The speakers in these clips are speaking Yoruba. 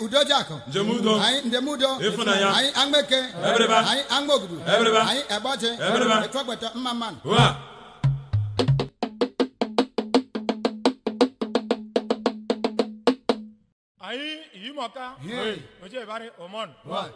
udojako. Njemudo. Ayi ndemudo. Ifunanya. Ayi angbeke. Ebereba. Ayi angbogudu. Ebereba. Ayi eboche. Ebereba. Etwagbeta mmaman. Wa. Ayi yimaka. Hey. Oje bare omon. Wa.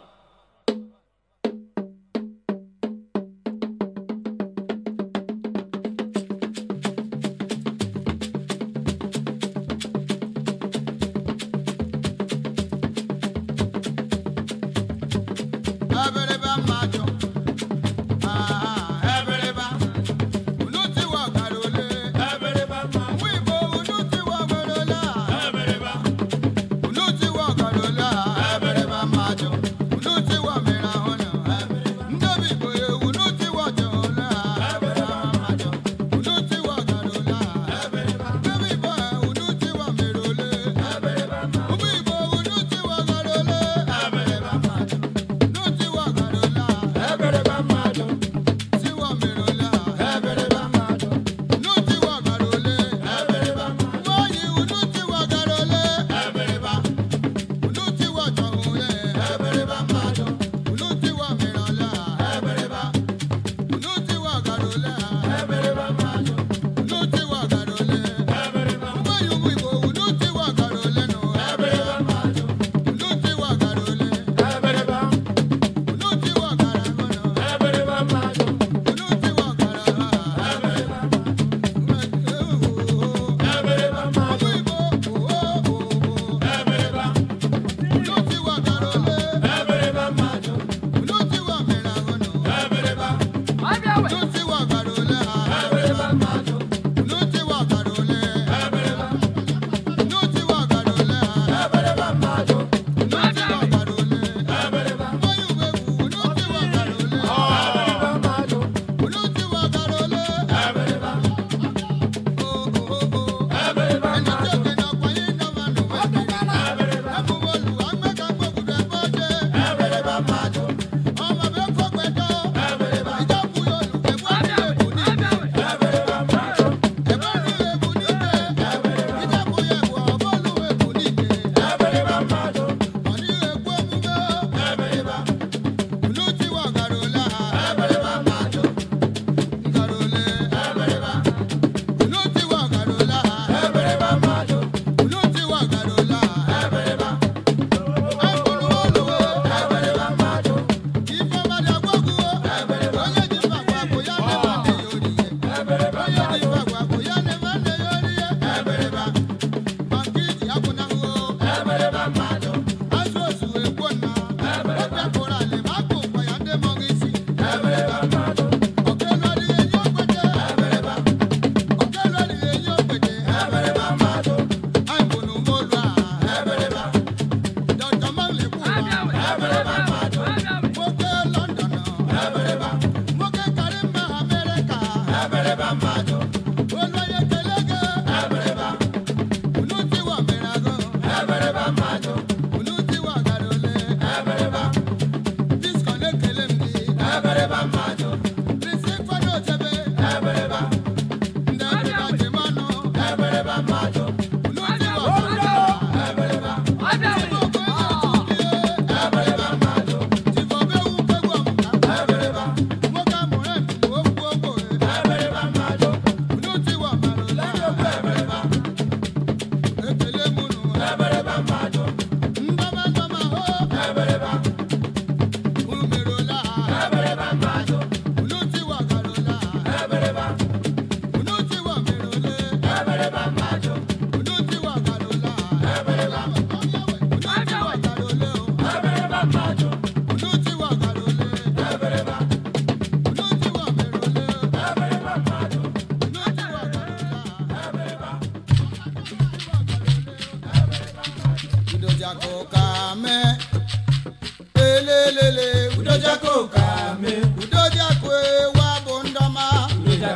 bambado.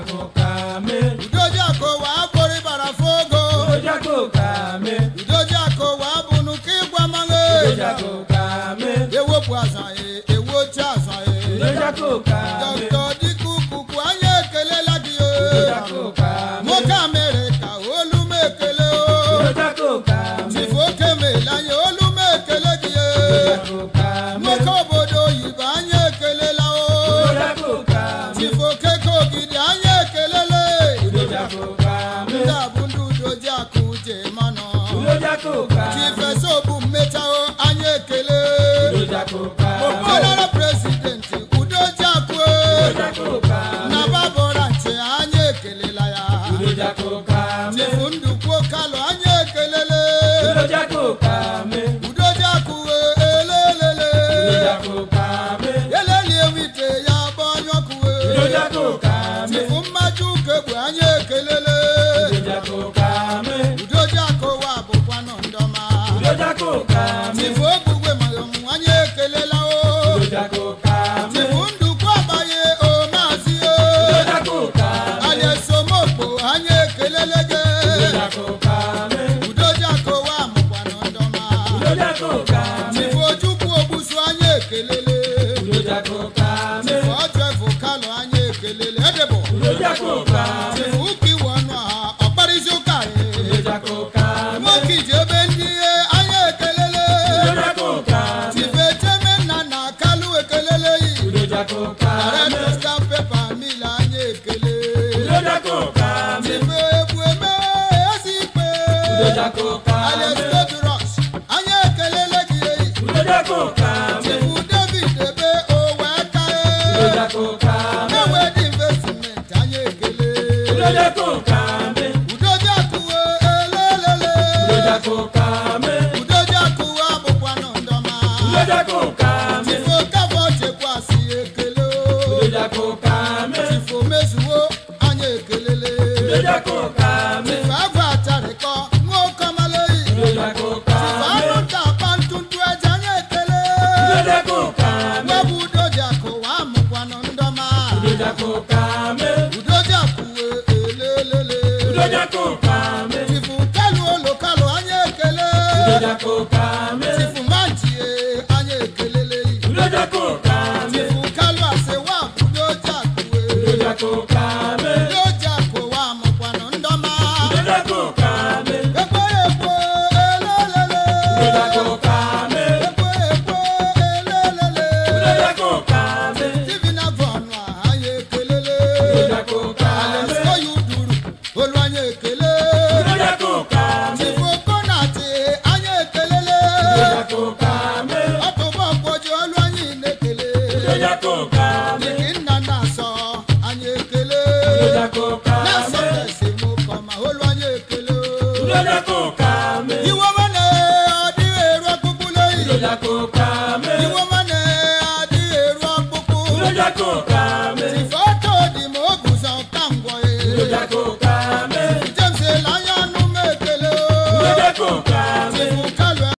kò ká mi. ìdójú àkó wà á borí bàrà fógo. ìdójú ewo bu àṣà ewo tí àṣà yìí. ìdójú anyị ekelele udoji akọwa bụkwa nọ ndọma D'accord Jacob Kamel. Iloja ko ka mane adi eru akpokpo. Iloja ko ka me. Sifoto di mo ogun san tango James Elayanu mekele o. Iloja